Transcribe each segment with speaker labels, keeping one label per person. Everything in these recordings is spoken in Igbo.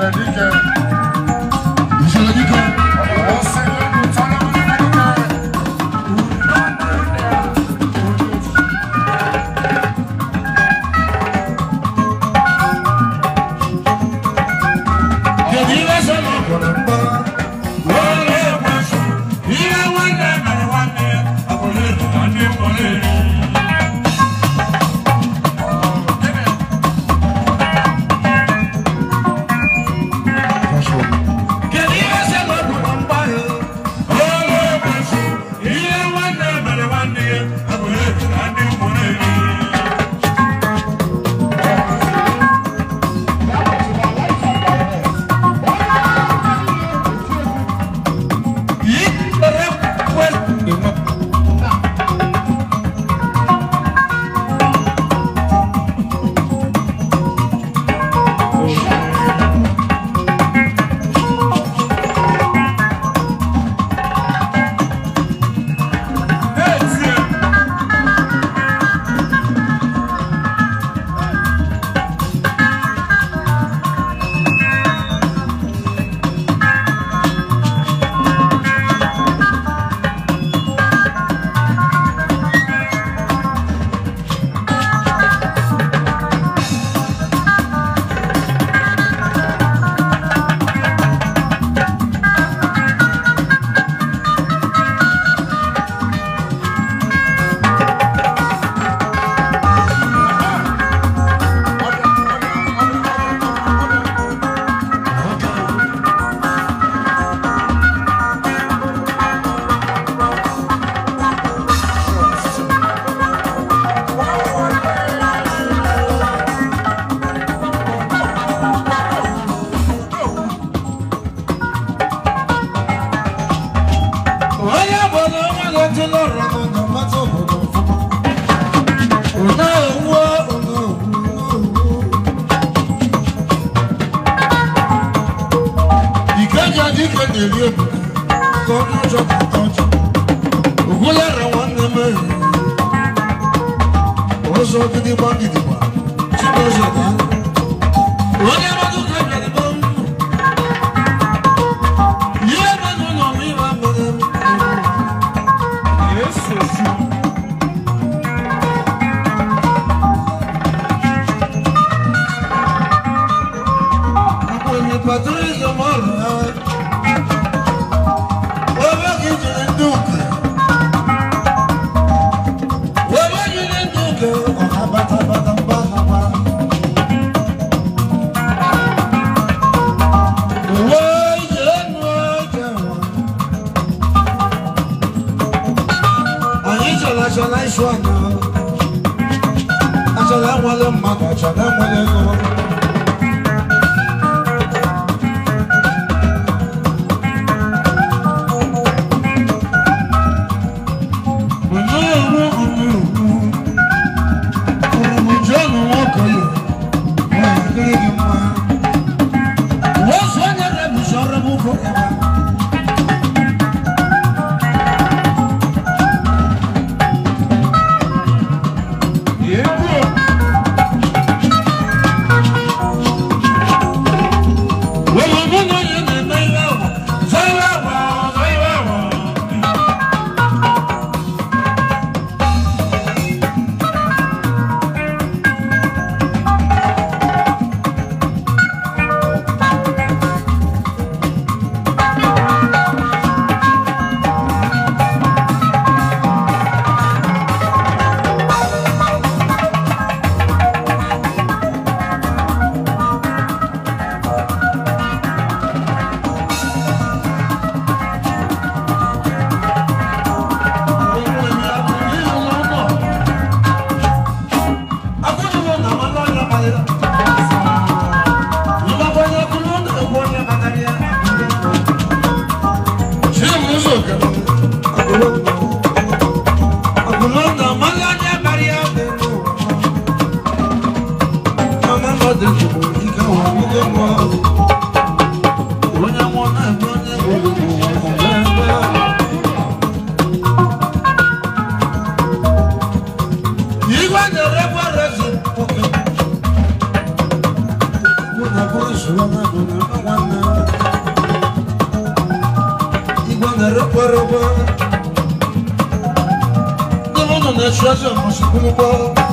Speaker 1: America. onye bụ na onye na-eji n'ọrụ n'ọdọ na-eri obodo ka onye ụjọ pụta ọjọ ogwulara nwanne m ehi ụzọ gidigba gidigba chinezo na onye Achola wale mama, achola wale mama. treasure must be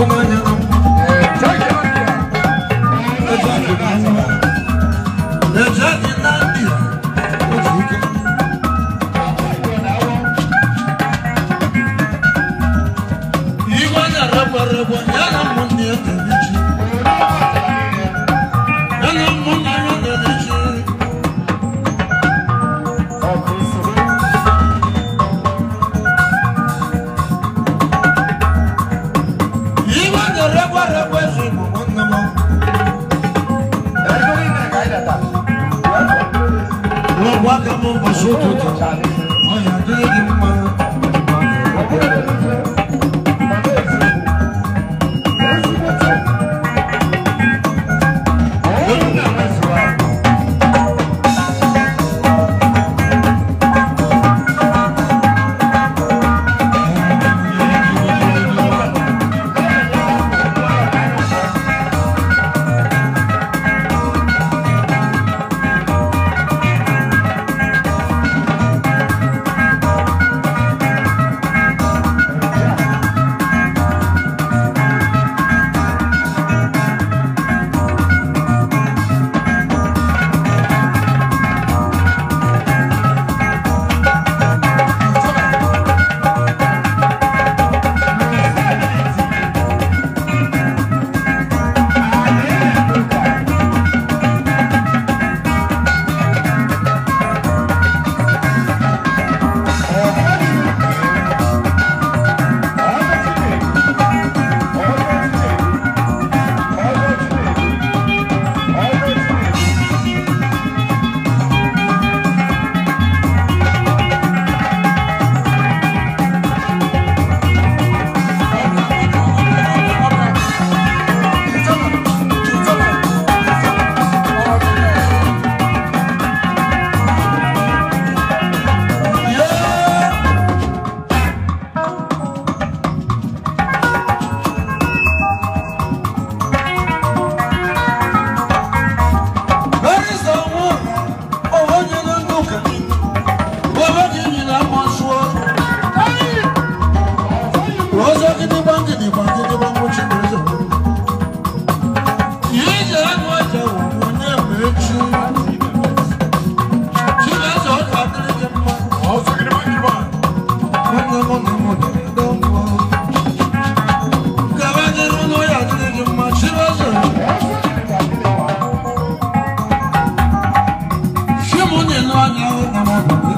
Speaker 1: 我们。no, no, no, no,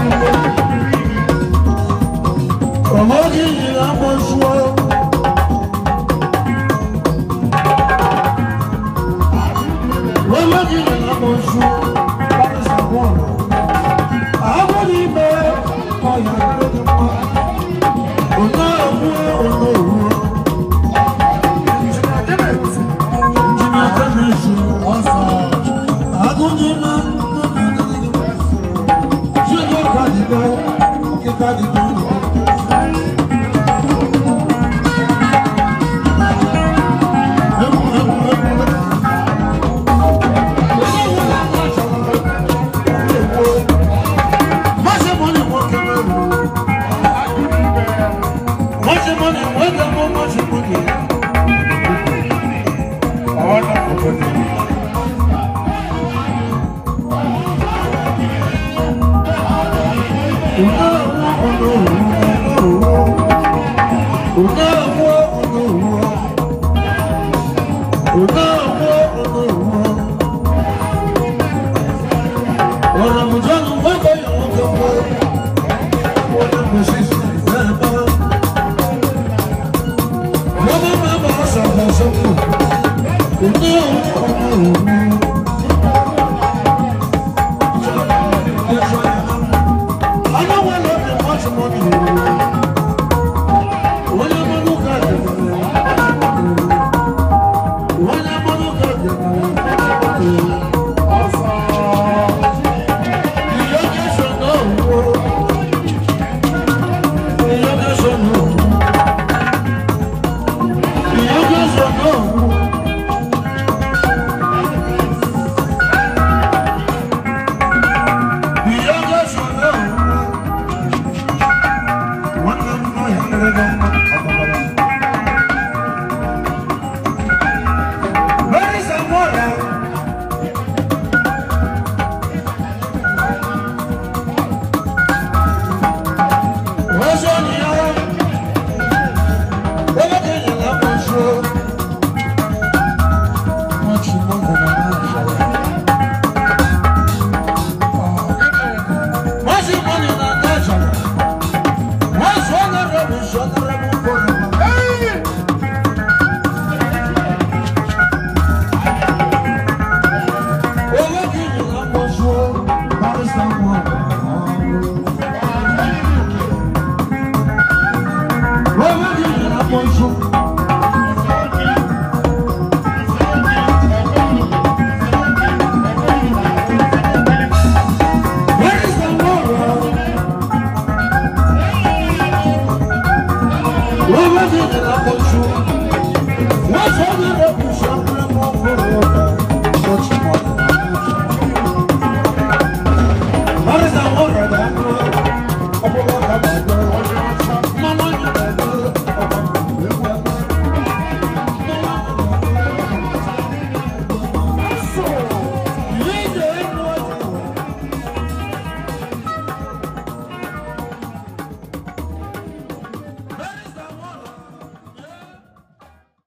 Speaker 1: Come on, give me Promoting the more.